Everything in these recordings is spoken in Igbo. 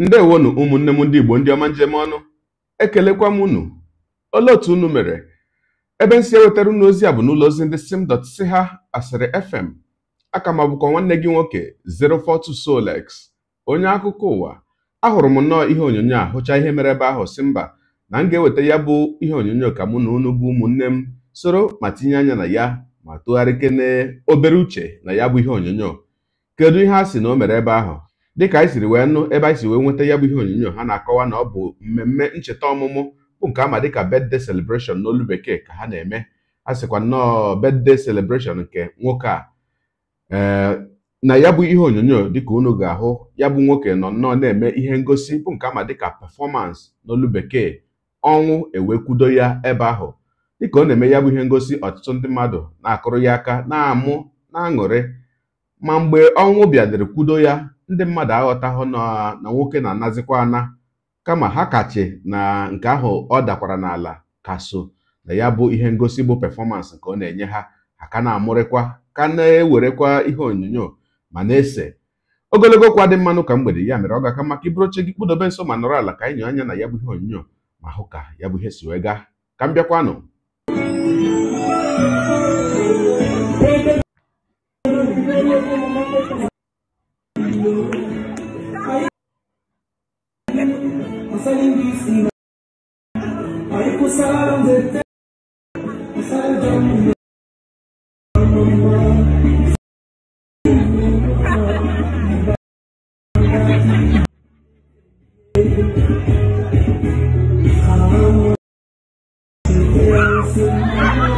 ndewonu ụmụnne m ndị Igbo ndị ọma njem ọnụ ekelekwa m unu olee otu unu mere ebe m si ewetara unu ozi a bụ n'ụlọ ozi ndị ha asịrị fm aka m abụkwa nwanne gị nwoke 042 Solex onye akụkọ ụwa ahụrụ m nnọọ ihe onyonyo a hụcha ihe mere ebe ahụ si mba na m ga-eweta ya bụ ihe onyonyo ka mụ na unu bụ ụmụnne m soro ma tinye anya na ya ma tụgharịkene obere uche na ya bụ ihe onyonyo kedu ihe a sị na o mere ebe ahụ dịka anyị siri wee nụ ebe anyị si wee nweta ya bụ ihe onyonyo ha na-akọwa na ọ bụ mmemme ncheta ọmụmụ bụ nke ama dịka birthday celebration n'olu bekee ka ha na-eme a sịkwa nnọọ birthday celebration nke nwoke a na ya bụ ihe onyonyo dịka unu ga-ahụ ya bụ nwoke nọ nnọọ na-eme ihe ngosi bụ nke ama dịka pefọmansị n'olu bekee ọnwụ ewekwudo ya ebe ahụ dịka ọ na-eme ya bụ ihe ngosi ọtụtụ ndị mmadụ na-akụrụ ya aka na-amụ na-aṅụrị ma mgbe ọnwụ bịadịrị kwudo ya ndị mmadụ aghọtahụ na nwoke na-anazikwa ana kama ha kachi na nke ahụ ọ dakwara n'ala ka so na ya bụ ihe ngosi bụ pefọmansị nke ọ na-enye ha ha ka na-amụrịkwa ka na-ewerekwa ihe onyonyo ma na-ese ogologo okwu adị mmanụ ka mgbede ya mere ọ ga-aka maka iburu oche gị kpụdobe nso ma nọrọ ala ka anyị anya na ya bụ ihe onyinyo ma hụ ka ya bụ ihe si wee gaa ka m bịakwanụ Thank you.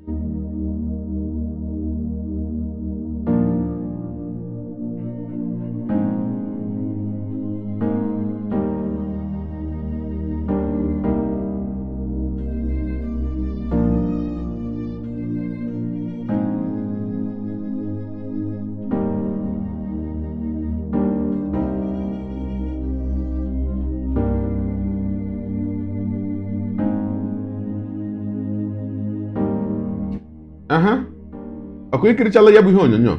ọkụ ikirichala ya bụ ihe onyonyo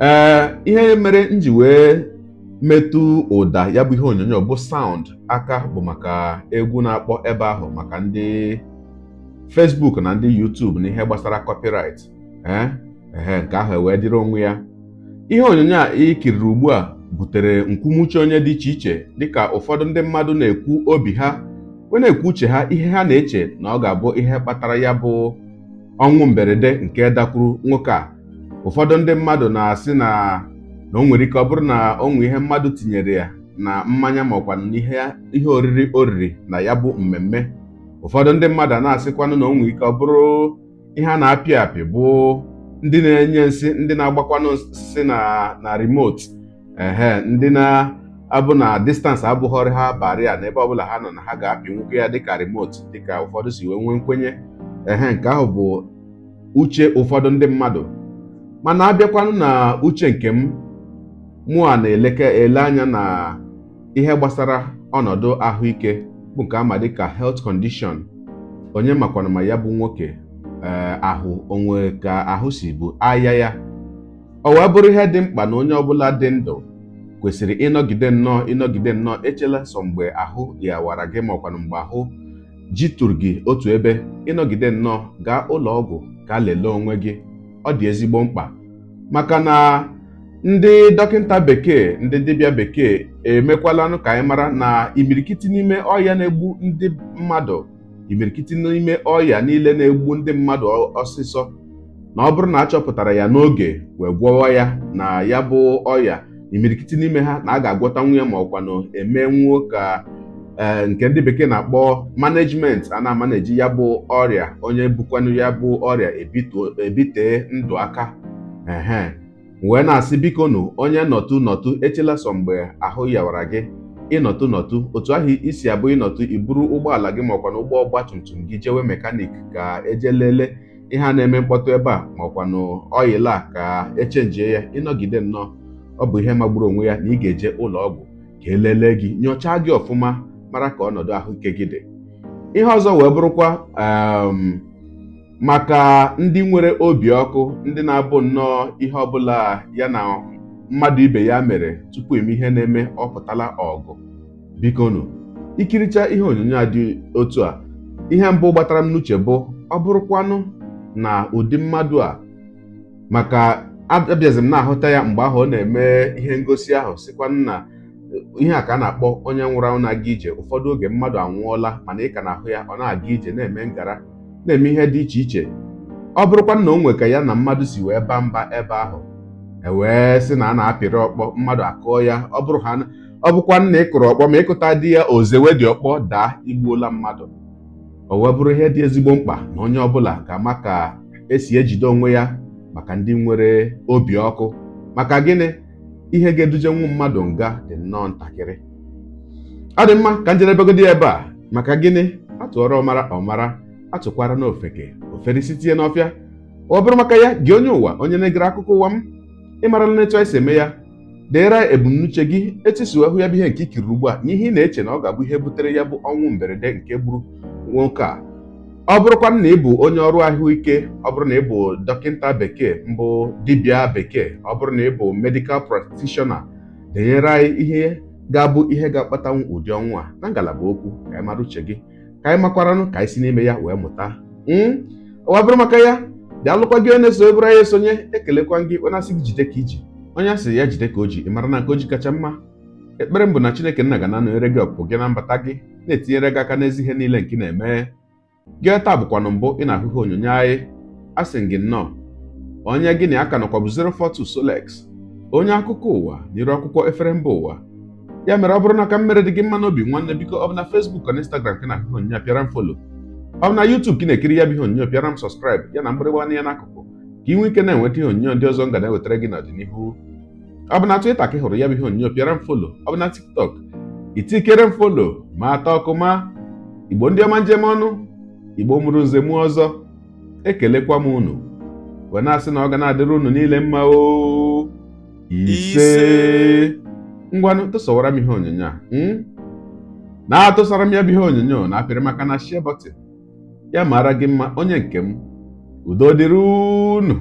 ee ihe mere nji wee metụ ụda ya bụ ihe onyonyo bụ saụnd aka bụ maka egwu na-akpọ ebe ahụ maka ndị Facebook na ndị YouTube na ihe gbasara copyright ee nke ahụ e wee dịrị onwe ya ihe onyonyo a ikiriri ugbu a butere nkwumuche onye dị iche iche dịka ụfọdụ ndị mmadụ na-ekwu obi ha wee na-ekwu uche ha ihe ha na-eche na ọ ga-abụ ihe kpatara ya bụ ọnwụ mberede nke dakwuru nwoke a ụfọdụ ndị mmadụ na-asị na na o nwere ike ọ bụrụ na onwe ihe mmadụ tinyere ya na mmanya maọkwa ihe oriri oriri na ya bụ mmemme ụfọdụ ndị mmadụ a na-asịkwanụ na o ike ọ bụrụ ihe a na-apị apị bụ ndị na-enye nsị ndị na-agbakwanụ nsị na na remote ehe ndị na-abụ na distance abụghọrị ha barị a ebe ọbụla ha nọ na ha ga-apị nwoke ya dịka remote dịka ụfọdụ si wee nwee nkwenye ehe nke ahụ bụ uche ụfọdụ ndị mmadụ mana abịakwanụ na uche nke m mụ na-eleke ele anya na ihe gbasara ọnọdụ ahụike bụ nke ama dịka health condition onye makwana ma ya bụ nwoke eh, ahụ onwe ka ahụ si bụ aya ya ọ wee bụrụ ihe dị mkpa na onye ọbụla dị ndụ kwesịrị ịnọgide nnọọ ịnọgide nnọọ echela sọ mgbe ahụ yawara gị ma mgbe ahụ jitụrụ gị otu ebe ịnọgide nnọọ gaa ụlọ ọgwụ ka lelee onwe gị ọ dị ezigbo mkpa maka na ndị dọkịta bekee ndị dibịa bekee emekwalanụ ka anyị mara na imirikiti n'ime ọya na-egbu ndị mmadụ imirikiti n'ime ọya niile na-egbu ndị mmadụ ọsịsọ na ọ bụrụ na achọpụtara ya n'oge wee gwọwa ya na ya bụ ọya imirikiti n'ime ha na a ga agwọta nwunye ma ọkwanụ e ka Eh, nke ndị bekee na-akpọ management a na amanaji ya bụ ọrịa onye bukwanụ ya bụ ọrịa ebitee ndụ aka ehe wee na-asị biko nụ onye nọtụ nọtụ echela sọ mgbe ahụ yawara gị ịnọtụ nọtụ otu ahụ isi abụ ịnọtụ iburu ụgbọala gị makwa na ụgbọ ọgba tum tum gị jewe mekanik ka eje lele ihe a na-eme mkpọtụ ebe a makwa na ọyịla ka echenjie ya ịnọgide nnọọ ọ bụ ihe magburu onwe ya na ị ga-eje ụlọ ọgwụ ka elele gị nyochaa gị ọfụma mara ka ọnọdụ ahụike gị dị ihe ọzọ wee bụrụkwa um, maka ndị nwere obi ọkụ ndị na-abụ nnọọ ihe ọbụla ya na mmadụ ibe ya mere tupu eme ihe na-eme ọ pụtala ọgụ bikonu ikiricha ihe onyonyo a dị otu a ihe mbụ gbatara m n'uche bụ ọ bụrụkwanụ na ụdị mmadụ a maka abịazi na-ahụta ya mgbe ahụ ọ na-eme ihe ngosi ahụ sikwa nna ihe a ka a na-akpọ onye nwụrụ anwụ na-aga ije ụfọdụ oge mmadụ anwụọla mana ị ka na-ahụ ya ọ na-aga ije na-eme ngara na-eme ihe dị iche iche ọ bụrụkwa na o nwe ka ya na mmadụ si wee baa mba ebe ahụ ewee sị na a na-apịrị ọkpọ mmadụ akụọ ya ọ bụrụ ha ọ bụkwa nna ị kụrụ ọkpọ ma ịkụta di ya ozewe dị ọkpọ daa igbuola mmadụ o wee bụrụ ihe dị ezigbo mkpa na onye ọbụla ga-ama ka esi ejide onwe ya maka ndị nwere obi ọkụ maka gịnị ihe ga-edujenwu mmadụ nga dị nnọọ ntakịrị ọ dị mma ka njedebegodi ebe a maka gịnị atụọrọ ọmara ọmara atụkwara na ofeke ofere isi tinye n'ọfịa ọ bụrụ maka ya gị onye ụwa onye na-egere akụkọ ụwa m ịmarala na etu anyị si eme ya deere ebumnuche gị etisuo ahụ ya bụ ihe nke ikiri ugbu a n'ihe ị na-eche na ọ ga-abụ ihe butere ya bụ ọnwụ mberede nke gburu nwoke a ọ bụrụkwa na ị bụ onye ọrụ ahụike ọ bụrụ na ị bụ dọkịta bekee mbụ dibịa bekee ọ bụrụ na ị bụ medikal practitioner denyere anyị ihe ga-abụ ihe ga-akpatanwu ụdị ọnwụ a na ngalaba okwu ka anyị mara uche gị ka anyị makwaranụ ka anyị si n'ime ya wee mụta hmm? ọ bụrụ maka ya bịa lụkwa gị onye so ebere anyị esonye ekelekwa gị onye asị gị jide ka iji onye asị ya jide ka o ji ị mara na nke o ji kacha mma ekpere m bụ na Chineke nna ga na-anọnyere gị ọpụpụ gị na mbata gị na-etinyere gị aka n'ezi ihe niile nke na-eme gị taa bụkwanụ mbụ ị na-ahụhụ onyonyo anyị a sị gị nnọọ onye gị na aka ka nọkwabụ 042 Solex onye akụkọ ụwa n'iru akwụkwọ efere mba ụwa ya mere ọ bụrụ na ka mmere dị gị mma n'obi nwanne biko ọ bụ na Facebook na Instagram gị na-ahụhụ onyonyo pịara m folo ọ bụ na yutub ka ị na-ekiri ya bụ ihe onyonyo pịara m sọskraịbụ ya na mgbịrịgba anya n'akụkụ ka ị nwee ike na-enweta ihe onyonyo ndị ọzọ nga na-ewetara gị n'ọdịnihu ọ bụ na twita ka ị hụrụ ya bụ ihe onyonyo pịara m folo ọ bụ na TikTok itikere m folo ma ata ọkụ ma igbo ndị ọma njem ọnụ igbo mụrụ nze ọzọ ekelekwa m unu wee na-asị na ọ ga na-adịrị unu niile mma o ise ngwanụ m ihe onyonyo a na-atụsara m ya bụ ihe onyonyo na apịrị maka na shia bọtịn ya mara gị mma onye nke m udo dịrị unu